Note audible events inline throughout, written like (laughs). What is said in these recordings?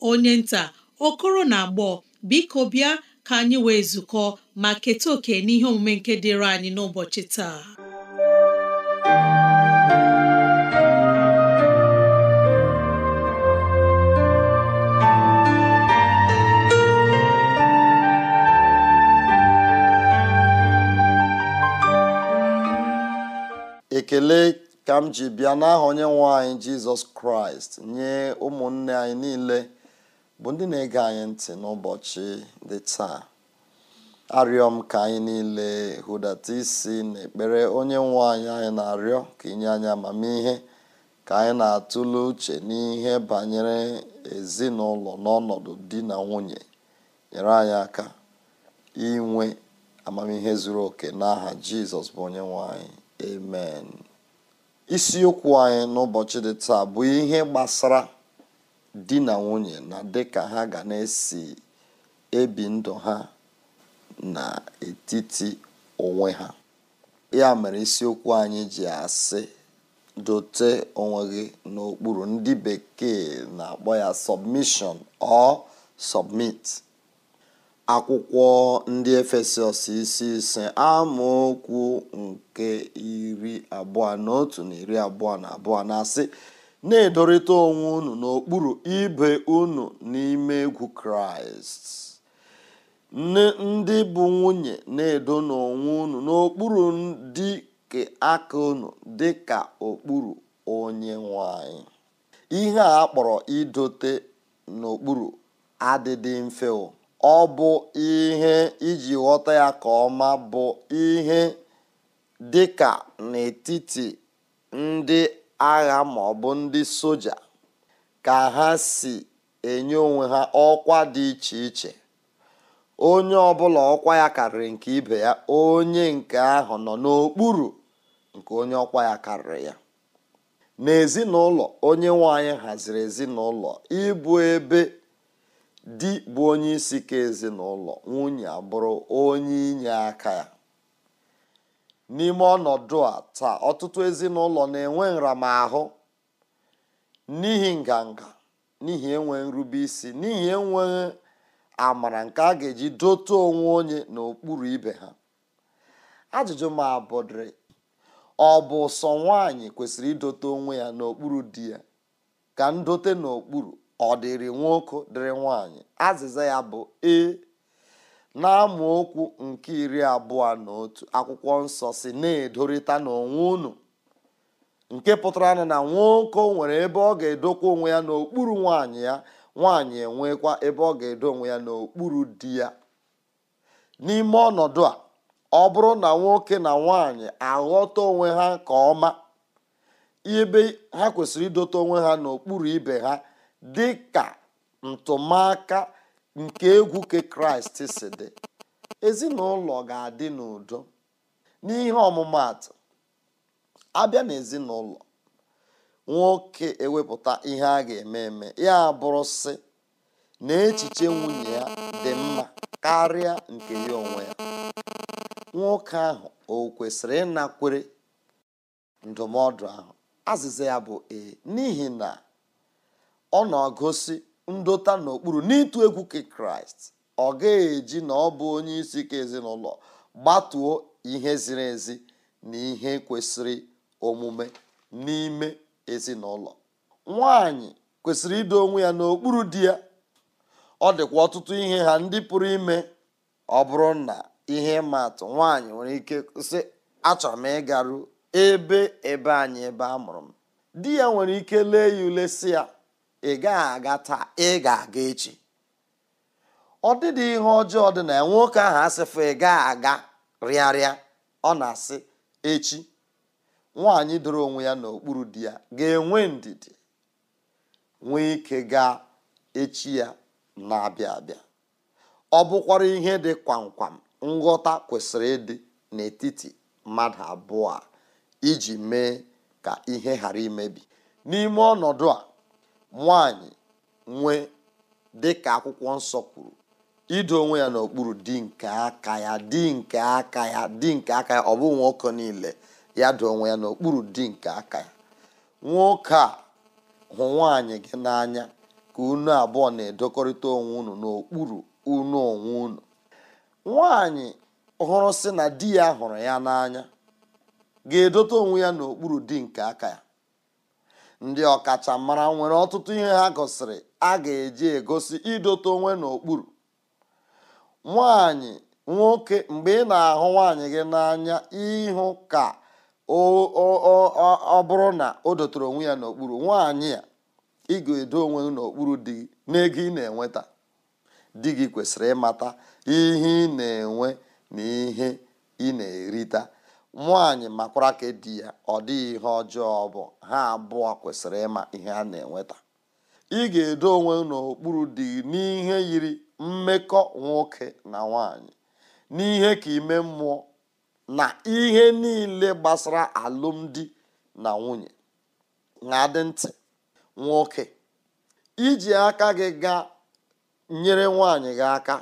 onye nta okoro na agbọ biko bịa ka anyị wee zukọ ma keta oke n'ihe omume nke dịịrị anyị n'ụbọchị taa ekele ka m ji bịa n'aha onye nwe anyị jizọs kraịst nye ụmụnne anyị niile bụ ndị na-ege anyị ntị n'ụbọchị dị taa arịọ m ka anyị niile hụdata isi na ekpere onye nwe anyị anyị na-arịọ ka inye anyị amamihe ka anyị na-atụle uche n'ihe banyere ezinụlọ n'ọnọdụ di na nwunye nyere anyị aka inwe amamihe zuru oke n'aha jizọs bụ onye nwe anyị amen isiokwu anyị n'ụbọchị dị taa bụ ihe gbasara di na nwunye na dịka ha ga na-esi ebi ndụ ha na etiti onwe ha ya mere isiokwu anyị ji asị dote onwe gị n'okpuru ndị bekee na-akpọ ya submission or submit akwụkwọ ndị efesọs isi ise amaokwu nke iri abụọ na otu na iri abụọ na abụọ na-asị na-edorịta onwe unu n'okpuru ibe unu n'ime egwu kraịst ndị bụ nwunye na-edo n'onwe unu n'okpuru dị ka aka unu dị ka okpuru onye nwanyị ihe a kpọrọ idote n'okpuru adịdị mfe ọ bụ ihe iji ghọta ya ka ọma bụ ihe dị ka n'etiti ndị agha ma ọ bụ ndị soja ka ha si enye onwe ha ọkwa dị iche iche onye ọbụla ọkwa ya karịrị nke ibe ya onye nke ahụ nọ n'okpuru nke onye ọkwa ya karịrị ya n'ezinụlọ onye nwanyị haziri ezinụlọ ịbụ ebe di bụ onye isi ka ezinụlọ nwunye abụrụ onye inye aka ya n'ime ọnọdụ a taa ọtụtụ ezinụlọ na-enwe nramahụ n'ihi nganga n'ihi enwe nrube isi n'ihi enweghị amara nke a ga-eji dote onwe onye n'okpuru ibe ha ajụjụ ma abụdịrị ọ bụ sọ nwaanyị kwesịrị idote onwe ya n'okpuru di ya ka ndote n'okpuru ọ dịrị nwoke dịrị nwaanyị azịza ya bụ ee na-amu okwu nke iri abụọ na otu akwụkwọ nsọ si na-edorịta n'onwe unu nke pụtara na na nwoke nwere ebe ọ ga-edokwa onwe ya n'okpuru nwaanyị ya nwaanyị enwekwa ebe ọ ga-edo onwe ya n'okpuru di ya n'ime ọnọdụ a ọ bụrụ na nwoke na nwaanyị aghọta onwe ha nke ọma ebe ha kwesịrị idote onwe ha n'okpuru ibe ha dị ka ntụmaka nke egwu ke kraịst si dị ezinụlọ ga-adị n'udo n'ihe ọmụmatụ abịa n'ezinụlọ nwoke ewepụta ihe a ga-eme eme ya bụrụ sị na echiche nwunye ya dị mma karịa nke ya onwe ya nwoke ahụ o kwesịrị ịnakwere ndụmọdụ ahụ azịza ya bụ ee n'ihi na ọ na agosi ndota n'okpuru n'ịtụ egwu ka kraịst ọ ga-eji na ọ bụ onye isi ka ezinụlọ gbatuo ihe ziri ezi na ihe kwesịrị omume n'ime ezinụlọ nwanyị kwesịrị ido onwe ya n'okpuru di ya ọ dịkwa ọtụtụ ihe ha ndị pụrụ ime ọ bụrụ na ihe ịma atụ nwaanyị nwere ike sị achọrọ m ịgaru ebe ebe anyị ebe a mụrụ m di ya nwere ike lee ya ule si ya ị gaghị aga taa ị ga-aga echi ọ dịdị ihe ọjọọ dị na ya nwoke ahụ asịfụ ị gaghị aga rịarịa ọ na-asị echi nwaanyị doro onwe ya n'okpuru di ya ga-enwe ndidi nwee ike gaa echi ya na-abịa abịa ọ bụkwara ihe dị kwamkwam nghọta kwesịrị ịdị n'etiti mmadụ abụọ a iji mee ka ihe ghara imebi n'ime ọnọdụ a nwanyị nwee dịka akwụkwọ nsọ kwuru ido onwe ya n'okpuru di nke aka ya di nke aka ya di nke aka ya ọ bụ nwoke niile ya do onwe ya n'okpuru di nke aka ya nwoke a hụ nwaanyị gị n'anya ka unu abụọ na-edokọrịta onwe unu n'okpuru unu onwe unu nwaanyị hụrụ sị na di ya hụrụ ya n'anya ga-edote onwe ya n'okpuru di nke aka ya ndị ọkachamara nwere ọtụtụ ihe ha gosiri a ga-eji egosi idote onwe n'okpuru nwanyị nwoke mgbe ị na-ahụ nwaanyị gị n'anya ịhụ ka ọ bụrụ na o dotere onwe ya n'okpuru nwaanyị a ị ga-edo onwe n'okpuru dị n'ego ị na-enweta di gị kwesịrị ịmata ihe ị na-enwe na ihe ị na-erita nwaanyị makwara ka di ya ọ dịghị ihe ọjọọ bụ ha abụọ kwesịrị ịma ihe a na-enweta ị ga-edo onwe n'okpuru dị n'ihe yiri mmekọ nwoke na nwanyị n'ihe ka ime mmụọ na ihe niile gbasara alụmdi na nwunye na-adị ntị nwoke iji aka gị gaa nyere nwaanyị gị aka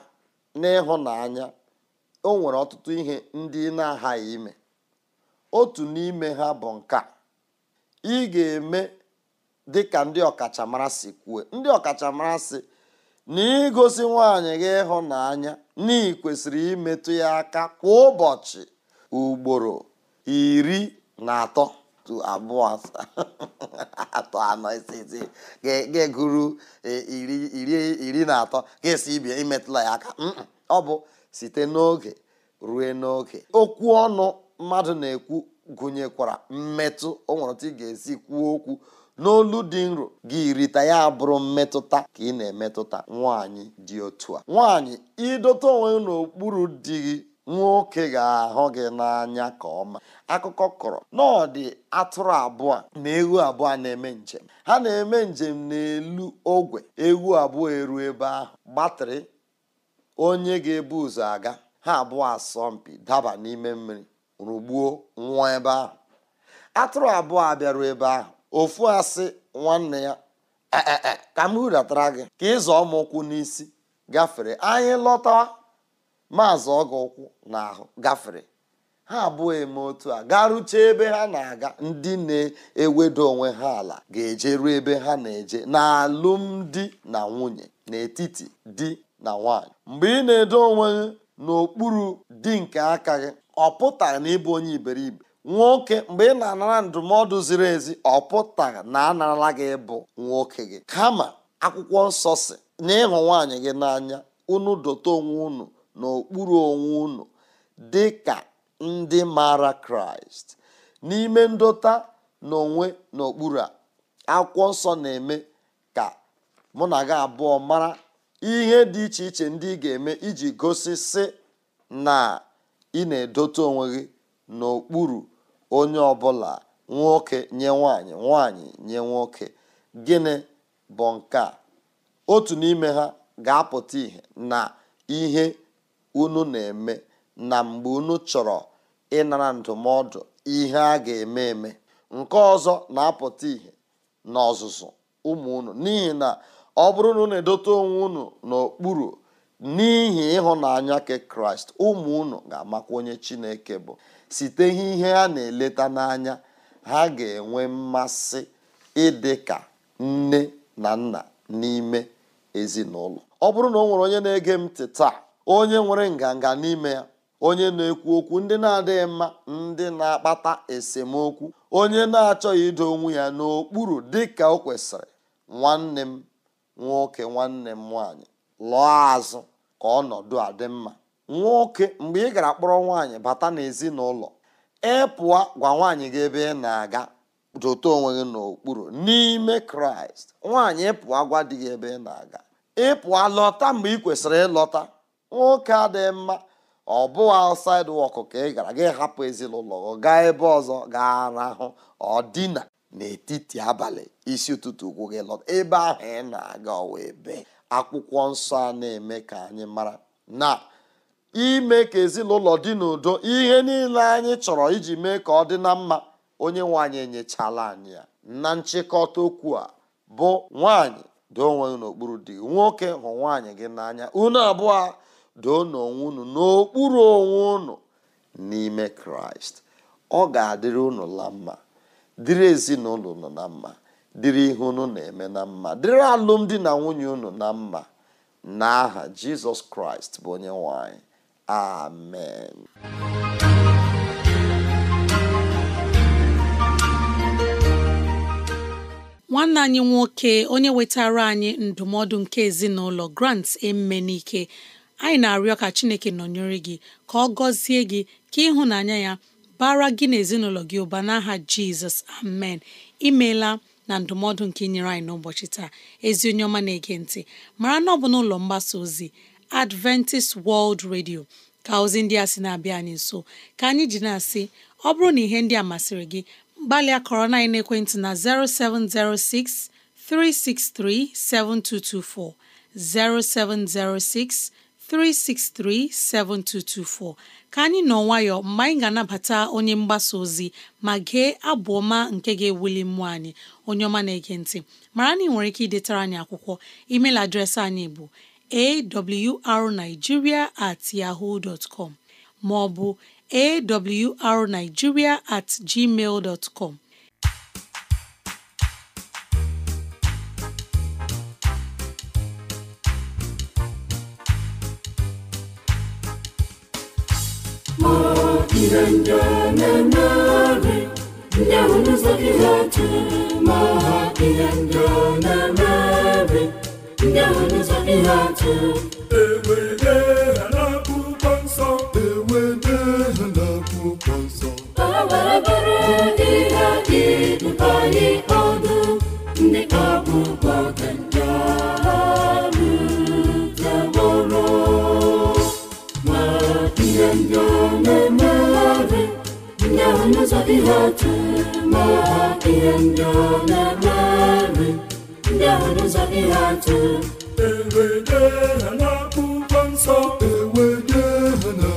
n'ịhụnanya o nwere ọtụtụ ihe ndị ị na-aghaghị ime otu n'ime ha bụ nke a ị ga-eme dị ka ndị ọkachamara si kwuo ndị ọkachamara si na igosi nwaanyị gị ịhụnanya na imetụ ya aka kwa ụbọchị ugboro iri na atọ abụọ (laughs) atọ anọ ga-eguru iri na atọ ga-esi ibi imetụla ya aka ọ bụ site n'oge ruo n'oge okwu ọnụ mmadụ na-ekwu gụnyekwara mmetụ o nwere ị ga-esi kwuo okwu n'olu dị nro gị rita ya bụrụ mmetụta ka ị na-emetụta nwaanyị dị otu a nwaanyị ịdọta onwe n'okpuru di gị nwoke ga-ahụ gị n'anya ka ọma akụkọ kọrọ n'ọdị atụrụ abụọ na ewu abụọ na-eme njem ha na-eme njem n'elu ogwe ewu abụọ eru ebe ahụ gbatịrị onye ga-ebu ụzọ aga ha abụọ asọmpi daba n'ime mmiri rụgbuo nwa ebe ahụ atụrụ abụọ a ebe ahụ ofu asị nwanne ya e, e, e, ka m hudatara gị ka ịzọ m ụkwụ n'isi gafere anyị lọta maazị ọgụ ụkwụ n'ahụ gafere ha abụọ eme otu a garuchee ebe ha na-aga ndị na-ewedo onwe ha ala ga-eje ruo ebe ha na-eje n'alụmdi na nwunye n'etiti di na nwanyị mgbe ị na-edo onwe gị n'okpuru di nke aka gị ọ pụta na ịbụ onye iberibe nwoke mgbe ị na-anara ndụmọdụ ziri ezi ọ pụta na anarala gị bụ nwoke gị kama akwụkwọ nsọ si na ịhụ nwaanyị gị n'anya unu dote onwe unu n'okpuru onwe unu dị ka ndị maara kraịst n'ime ndota na onwe n'okpuru a akwụkwọ nsọ na-eme ka mụ na gị abụọ mara ihe dị iche iche ndị ị ga-eme iji gosi sị na ị na-edote onwe gị n'okpuru onye ọbụla nwoke nye nwanyị nwanyị nye nwoke gịnị bụ nke a otu n'ime ha ga-apụta ihe na ihe unu na-eme na mgbe unu chọrọ ịnara ndụmọdụ ihe a ga-eme eme nke ọzọ na-apụta ihe n'ọzụzụ ụmụ unu n'ihi na ọ bụrụ na na edote onwe unu n'okpuru n'ihi ịhụnanya nke kraịst ụmụ unu ga-amakwa onye chineke bụ site ihe ha na-eleta n'anya ha ga-enwe mmasị ịdị ka nne na nna n'ime ezinụlọ ọ bụrụ na ọ nwere onye na-ege m ntị taa onye nwere nganga n'ime ya onye na-ekwu okwu ndị na-adịghị mma ndị na-akpata esemokwu onye na-achọghị ido onwe ya n'okpuru dị ka o kwesịrị nwanne m nwoke nwanne m nwaanyị lụọ azụ ka ọnọdụ a dị mma nwoke mgbe ị gara kpọrọ nwaanyị bata n'ezinụlọ ị pụọ gwa nwaanyị gị ebe ị na-aga dote onwe gị n'okpuru n'ime kraịst nwaanyị pụọ gwa dị gị ebe ị na-aga ị pụọ lọta mgbe ị kwesịrị ịlọta nwoke adịghị mma ọ bụghị outside work ka ị gara gị hapụ ezinụlọ gaa ebe ọzọ gaa arahụ ọ dina n'etiti abalị isi ụtụtụ ụkwụ gị lọta ebe ahụ ị na-aga ọwa ebe akwụkwọ nsọ a na-eme ka anyị mara na ime ka ezinụlọ dị n'udo ihe niile anyị chọrọ iji mee ka ọ dị na mma onye nwanyị enyechala anyị ya na nchịkọta okwu a bụ nwanyị doo onwe n'okpuru di nwoke hụ nwaanyị gị n'anya unu abụọ doo n'onwe unu n'okpuru onwe unu n'ime kraịst ọ ga-adịrị unu la mma dịrị ezinụlọ unu na mma dịrị ihe unu na-eme na mma dịrị alụmdi na nwunye unu na mma n'aha jizọs kraịst bụ onye nwanyị amen nwanne anyị nwoke onye wetara anyị ndụmọdụ nke ezinụlọ grant emenike anyị na-arịọ ka chineke nọnyere gị ka ọ gọzie gị ka ịhụnanya ya bara gị na gị ụba n'aha jizọs amen imeela na ndụmọdụ nke nyere anyị n'ụbọchị taa ezi onye ọma na-ege ntị mara na ọ bụ n'ụlọ mgbasa ozi Adventist World Radio ka ozi ndị a sị na-abịa anyị nso ka anyị ji na-asị ọ bụrụ na ihe ndị a masịrị gị gbalịa kọrọ na ekwentị na 0706 0706 363 7224 ka anyị nọ nwayọọ mgbe anyị ga-anabata onye mgbasa ozi ma gee abụ ọma nke ga-ewuli mmụọ anyị onye ọma na-ege ntị mara na ị nwere ike idetara anyị akwụkwọ email adreesị anyị bụ awrnigeria at yahoo dot com ma ọ bụ awrnigeria at gmail dot na-emeri ndị ahụ n'ụzọ gị ha jụrụ ma ha ihe ndị ọ na-emeri ndị ahụ n'ụzọ gị ụzọ dị ha ma ihe ndị ọ na-emeri ndị ahụ n'ụzọ dị ha ewede ha n'akwụkwọ nsọ ewede ha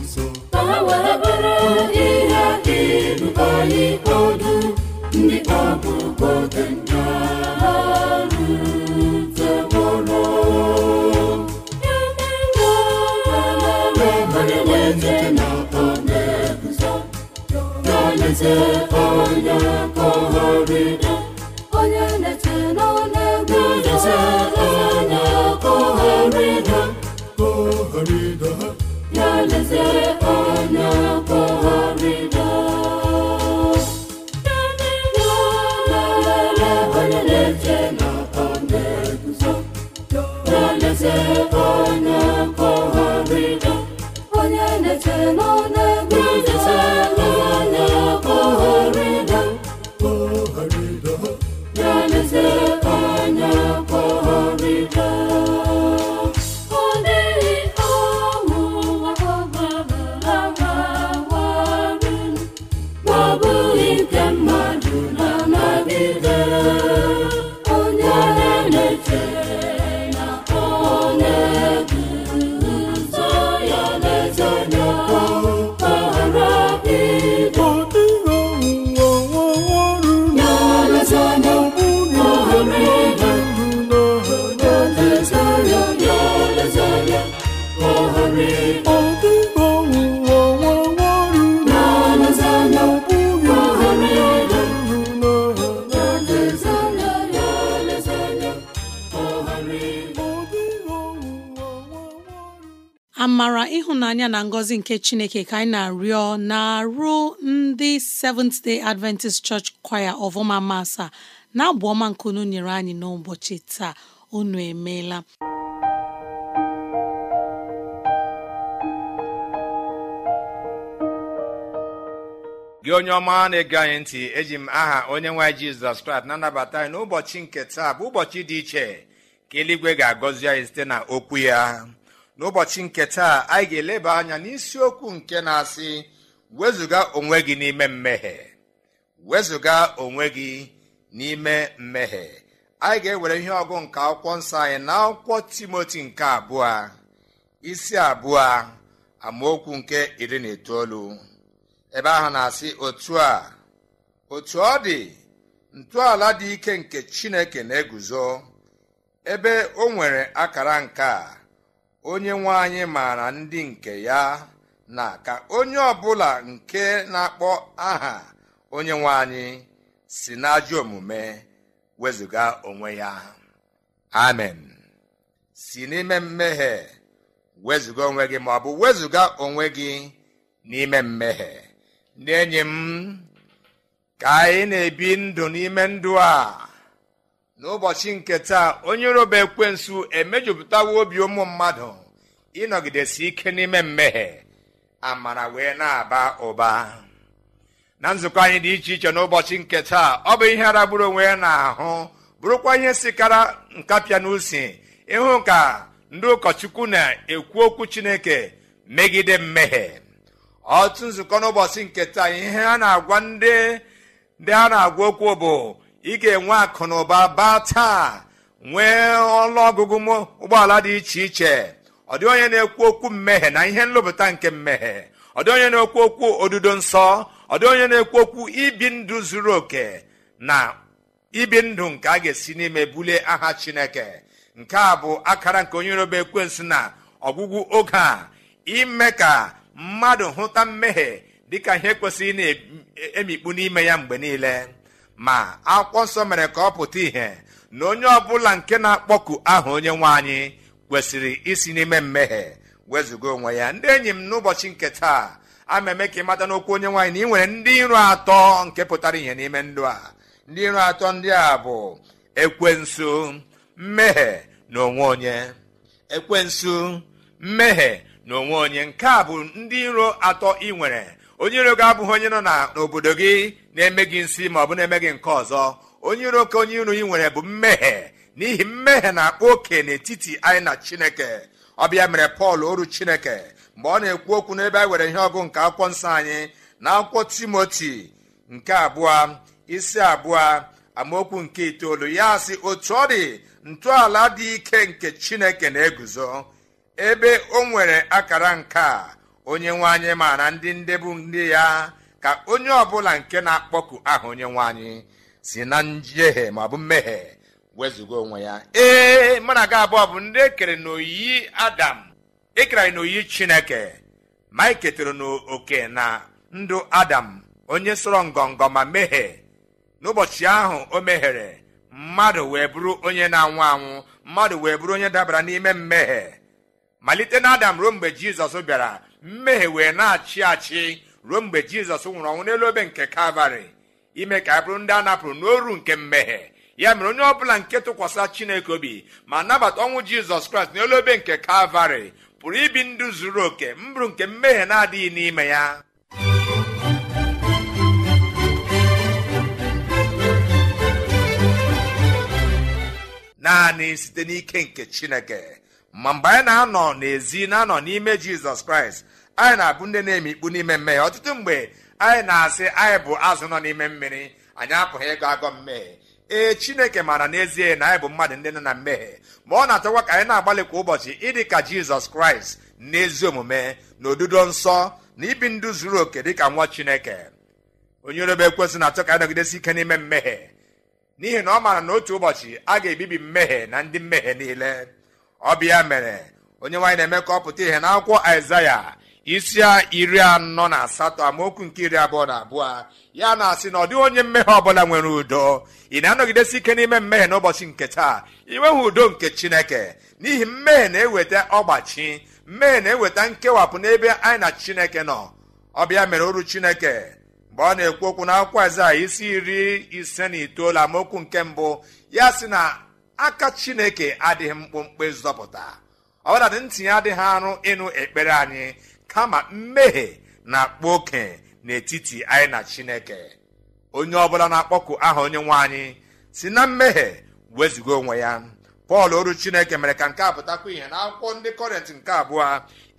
nsọ ka ha were bụrụ ihe dị anyị ọdụ ndị ọbụ oge ndị Jesus. ngọzi nke chineke ka anyị na-arịọ na-arụ ndị Seventh Day Adventist Church Choir of masa na-abụ ọma nke unu nyere anyị n'ụbọchị taa unu emeela gị onye ọma na-ege anyị ntị eji m aha onye nwe Jizọs na-anabata anyị n'ụbọchị nke taa bụ ụbọchị dị iche ka eluigwe ga-agọzi anyị site na okwu ya n'ụbọchị nke taa anyị ga-eleba anya n'isiokwu nke na-asị wezụga onwe gị n'ime mmehie wezụga onwe gị n'ime mmehie anyị ga-ewere ihe ọgụ nke akwụkwọ nsọ anyị na akwụkwọ timoti nke abụọ isi abụọ amaokwu nke iri na itoolu ebe ahụ na-asị otu a otu ọ dị ntọala dị ike nke chineke na-eguzo ebe o nwere akara nke a onye nwe anyị maara ndị nke ya na ka onye ọbụla nke na-akpọ aha onye nwe anyị si n'ajọ omume wezụga onwe ya amen si n'ime mmehie wezụga onwe gị ma bụ wezụga onwe gị n'ime mmehie ndị m ka anyị na-ebi ndụ n'ime ndụ a n'ụbọchị nke taa onye roba ekwensu emejupụtawo obi ụmụ mmadụ ịnọgidesi ike n'ime mmehie amara wee na-aba ụba na nzukọ anyị dị iche iche n'ụbọchị nke taa ọ bụ ihe aragburu onwe ya ahụ bụrụkwa ihe sikara nkapịa n'usi ịhụ ka ndị ụkọchukwu na-ekwu okwu chineke megide mmehie ọtụtụ nzukọ n'ụbọchị nke taa ihe a na-agwa ndị ndị a na-agwa okwu bụ ị ga-enwe akụ na ụba baa taa nwee ọnụọgụgụ ụgbọala dị iche iche ọ dị onye na-ekwu okwu mmehie na ihe nlụpụta nke mmehie ọ dị onye na-ekwu okwu odudo nsọ ọ dị onye na-ekwu okwu ibi ndụ zuru oke na ibi ndụ nke a ga-esi n'ime bulie aha chineke nke a bụ akara nke onye roba ekwensị na ọgwụgwụ oge a ime ka mmadụ hụta mmehie dịka ihe kwesịrị na-emikpu e, e, n'ime ya mgbe niile ma akwụkwọ nsọ mere ka ọ pụta ìhè na onye ọbụla nke na-akpọku aha onye nwe anyị kwesịrị isi n'ime mmehie wezụga onwe ya ndị enyi m n'ụbọchị nke taa ama eme ka mata n'okwu onye nwaanyị na ị nwere ndị iro atọ nke pụtara ihe n'ime ndụ a ndị iro atọ ndị a bụ ekwensu mmehie na onwe onye ekwensu mmehie na onwe onye nke a bụ ndị iro atọ ị nwere onye iro gị abụghị onye nọ n'obodo gị na-eme gị nsị ma ọ bụ na-eme gị nke ọzọ onye iro oke onye iro ị nwere bụ mmehie n'ihi mmehie na-akpa oke n'etiti anyị na chineke ọbịa mere pọl oru chineke mgbe ọ na-ekwu okwu n'ebe anyị were ihe ọgụ nke akwụkwọ nsọ anyị na akwụkwọ timoti nke abụọ isi abụọ amaokwu nke itoolu ya sị otu ọ dị ntọala dị ike nke chineke na-eguzo ebe o nwere akara nke a onye nwe anyị ma na ndị ndebu ndị ya ka onye ọbụla nke na-akpọku aha onye nwe anyị si na njehie maọbụ bụ mmehie wezụga onwe ya ee mụ na abụọ bụ ndị ekere n'oyiyi adam ekere anyị n'oyiyi chineke ma anyị e ketara n'oke na ndụ adam onye sọrọ ngọngọ ma mehie n'ụbọchị ahụ o mehiere mmadụ wee bụrụ onye na-anwụ anwụ mmadụ wee bụrụ onye dabara n'ime mmehie malite na adam ruo mgbe jizọs bịara mmehie wee na-achị achị ruo mgbe jizọs nwụrụ ọnwụ n'elu obe nke kalvarị ime ka anyị bụrụ ndị a napụrụ n'oru nke mmehie ya mere onye ọbụla nke tụkwasịra chineke obi ma nabata ọnwụ jizọs kraịst n'elu obe nke kalvarị pụrụ ibi ndụ zuru oke mbụrụ nke mmehie na-adịghị n'ime ya naanị site n'ike nke chineke ma mgbe anyị na-anọ n'ezi na-anọ n'ime jizọs kraịst anyị na-abụ ndị na-eme ikpu n'ime mmehie ọtụtụ mgbe anyị na-asị anyị bụ azụ nọ n'ime mmiri anyị apụghị ịgọ agọ mmehie ee chineke maara n'ezie na anyị bụ mmadụ ndị na mmehie ma ọ na-atọkwa ka anyị na-agbalị kwa ụbọchị ịdị ka jizọs kraịst n'ezi omume na odudo nsọ na ibi ndụ zuru oke dịka nwa chineke onye orebe ekwesị na-atọ ka anyị nọgidesi ike n'ime mmehie n'ihi na ọ maara na otu ụbọchị a ga-ebibi mmehie na ndị mmehie niile ọ ya mere onye nwaanyị na-eme ka ọ pụta ihe n'akwụkwọ isi iri anọ na asatọ amaokwu nke iri abụọ na abụọ ya na-asị na ọ dịghị onye mmehie ọbụla nwere udo ị na-anọgidesi ike n'ime mmehie n'ụbọchị nke taa ị udo nke chineke n'ihi mmehie na-eweta ọgbachi mmehie na-eweta nkewapụ n'ebe anyị na chineke nọ ọbịa mere oru chineke mgbe ọ na-ekwu okwu na akwụkwọ a isi iri ise na itoolu amaokwu nke mbụ ya sị na aka chineke adịghị mkpụmkpụ zọpụta ọbụladị ntị ntinye adịghị arụ ịnụ ekpere anyị kama mmehie na-akpa oke n'etiti anyị na chineke onye ọbụla na-akpọku aha onye nwe anyị si na mmehie wezuga onwe ya pọl oru chineke mere ka nke a pụtakwa ihe na akwụkwọ ndị kọrịnt nke abụọ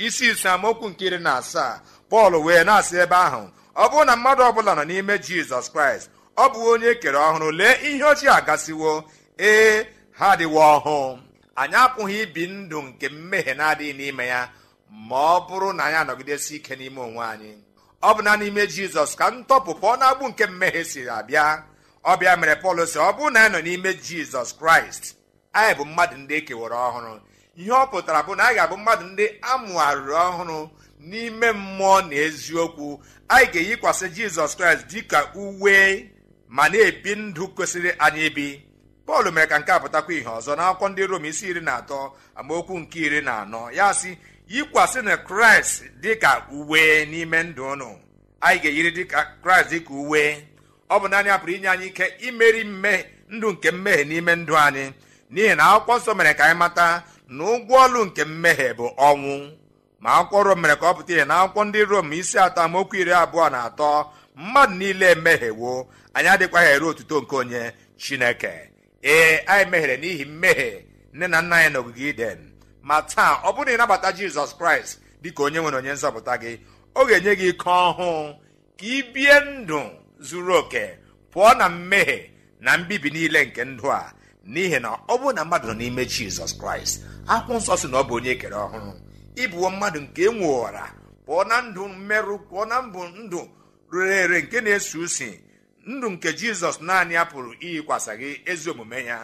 isi ise amaokwu nke iri na asaa pọl wee na-asị ebe ahụ ọ bụrụ na mmadụ ọbụla nọ n'ime jizọs kraịst ọ bụ onye ekere ọhụrụ lee ihe ochie agasiwo ee ha adịwo ọhụụ anyị apụghị ibi ndụ nke mmehie na-adịghị n'ime ya ma ọ bụrụ na anyị anọgidesi ike n'ime onwe anyị ọ bụ na n'ime jizọs ka ntọpụ pụọ agbụ nke mmehie siri abịa ọbịa mere pọl si ọ bụrụ na anyị nọ n'ime jizọs kraịst anyị bụ mmadụ ndị ekewara ọhụrụ ihe ọ pụtara bụ na anyị ga-abụ mmadụ ndị amụgharịrị ọhụrụ n'ime mmụọ na eziokwu anyị ga-eyikwasị jizọs kraịst dịka uwe ma na-ebi ndụ kwesịrị anyị ibi pọl mere ka nke a pụtakwa ihe ọzọ n'akwụkwọ ndị rom isi iri na atọ amaokwu nke iri na anọ ya si yikwasị na kraịst dịka uwe n'ime ndụ ụnụ anyị ga-eyiri dịka kraịst dịka uwe ọ bụ naanị apụrụ inye anyị ike imeri mmehie ndụ nke mmehie n'ime ndụ anyị n'ihi na akwụkwọ nsọ mere ka anyị mata na ụgwọ ọlụ nke mmehie bụ ọnwụ ma akwụkwọ rom mere ka ọ pụta ihe na akwụkwọ ndị rom isi atọ amaokwu iri abụọ na atọ mmadụ niile emehiewo anyị adịkwaghị ere otuto nke onye chineke ee anyị meghere n'ihi mmehie nne na nna anyị na ogige iden ma taa ọ bụrụ na ịnabata jizọs kraịst dịka onye nwere onye nzọpụta gị ọ ga-enye gị ike ọhụụ ka ị bie ndụ zuru oke pụọ na mmehie na mbibi niile nke ndụ a n'ihi na ọ bụrụ na mmadụ nọ n'ime jizọs kraịst akwụkwọ nsọ si na ọ bụ onye ekere ọhụrụ ịbụwo mmadụ nke e nwewara pụọ na ndụ mmerụ pụọ na mbụ ndụ rere ere nke na-esi usi ndụ nke jizọs naanị ya pụrụ iyikwasa gị ezi omume ya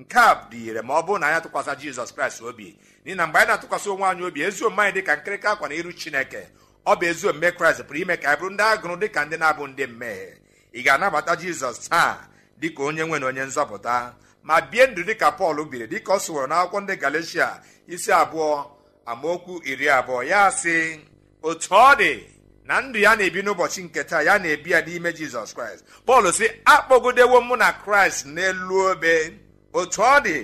nke a dị ire ma ọ bụrụ na ya atụkwasị jizọs kraịst obi n'ihi na mgbe anyị na-atụkwasị onwe anyị obi ezi omume anyị dị ka nkịrịka akwa na iru chineke ọ bụ ezi omume kraịst pụrụ ime ka anyị bụrụ ndị agụrụ dị ka ndị na-abụ ndị mmehie ị ga-anabata jizọs taa dị ka onye nwe na onye nzọpụta ma bie ndụ dị ka pọl biri dị ka ọ sụworo na ndị galeshia isi abụọ amaokwu iri abụọ ya sị otu ọ dị na ndụ ya na-ebi n'ụbọchị nke taa ya na-ebi ya n'ime jizọs kraịst pọl sị akpọgodewo mụ na kraịst n'elu obe otu ọ dị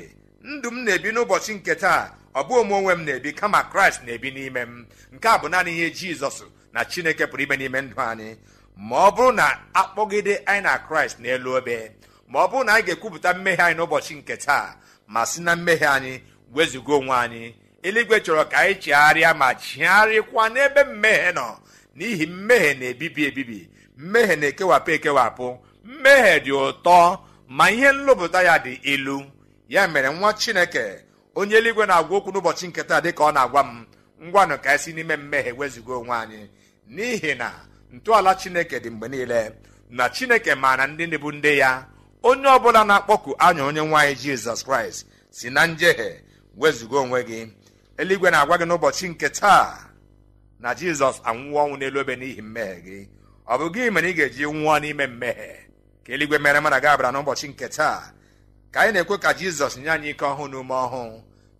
ndụ m na-ebi n'ụbọchị nke taa ọ bụghị ome onwe m na-ebi kama kraịst na-ebi n'ime m nke a bụ naanị ihe jizọs na chineke pụrụ ime n'ime ndụ anyị ma ọ bụrụ na akpọgide anyị na kraịst n'elu obe ma ọ bụrụ na anyị ga-ekwupụta mmehie anyị n'ụbọchị nke taa ma si na mmehie anyị wezụga onwe anyị eluigwe chọrọ ka anyị chegharịa ma chigharịkwa n'ebe mmehie nọ n'ihi mmehie na-ebibi ebibi mmehie na-ekewapụ ekewapụ mmehie dị ụtọ ma ihe nlụpụta ya dị ilu ya mere nwa chineke onye eluigwe na-agwa okwu n'ụbọchị nketa dị ka ọ na-agwa m ngwanụ ka esi n'ime mmehie wezugo onwe anyị n'ihi na ntọala chineke dị mgbe niile na chineke maara ndị ndị bụ ndị ya onye ọbụla na-akpọku anya onye nwaanyị jizọs kraịst si na njehie wezugo onwe gị eluigwe na-agwa gị n'ụbọchị nke taa na jizọs anwụọ ọnwụ n'elu obe n'ihi mmehie gị ọ bụ gị mere ị ga-eji nwụọ n'ime mmehie ka eluigwe mere mana gị abara n'ụbọchị nke taa ka anyị na-ekwe ka jizọs nye anyị ike ọhụụ n'ume ume ọhụụ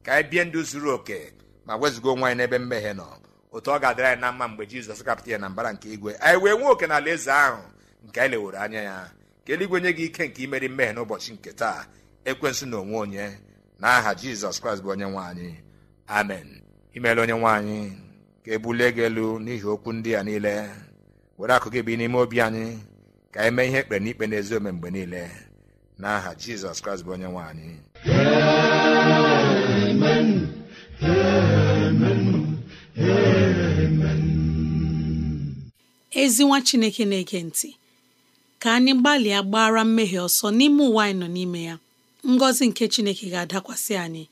ka anyị bie ndụ zuru oke ma wezụga onwe anyị n'ebe mmehie nọ otu ọ ga-adịra anyị na mma mgbe jizọs kapụta ya na mbara nke igwe anyị wee nwee oke na eze ahụ nke anyị leworo anya ya ka eluigwe nye gị ike nke imeri mmehie n'ụbọchị nke taa ekwensụ na onwe onye na aha jizọs kraịst bụ onye nwe anyị amen imeela onye nwe anyị ka e bulie gị elu n'ihi okwu ndị a niile were akụ gị bi n'ime obi anyị ka anyị mee ihe ekpere n'ikpe n'ezi ome mgbe niile n'aha jizọs kraịst onye nwanyị ezi nwa chineke na-ege ntị ka anyị gbalịa gbara mmehie ọsọ n'ime ụwa anyị nọ n'ime ya ngọzi nke chineke ga-adakwasị anyị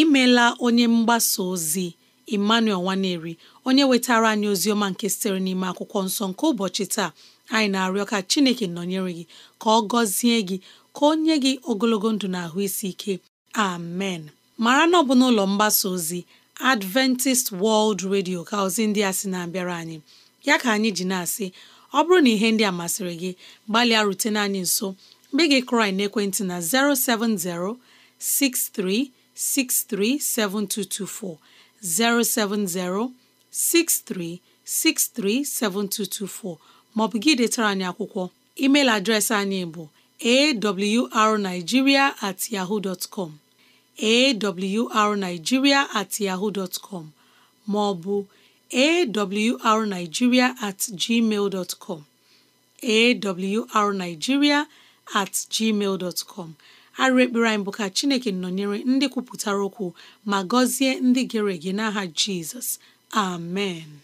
imela onye mgbasa ozi Emmanuel Nwaneri onye wetara anyị ozi ọma nke sitere n'ime akwụkwọ nsọ nke ụbọchị taa anyị na-arịọ ka Chineke nọnyere gị ka ọ gọzie gị ka onye gị ogologo ndụ na ahụ isi ike amen mara na ọ bụ n'ụlọ mgbasa ozi Adventist World Radio ka ozi ndị a sị na-abịara anyị ya ka anyị ji na-asị ọ bụrụ na ihe ndị a masịrị gị gbalịa rutene anyị nso mgbe gị krai n'ekwentị na 070 6363 7224 070 maọbụ gị detara anyị akwụkwọ emeil adreesị anyị bụ awrnigeria at yahoo dot at ma ọ bụ at gmail dot com at gmail bụ ka Chineke nọnyere ndị kwupụtara okwu ma gọzie ndị gere ege n'aha Jizọs amen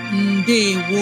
ndewo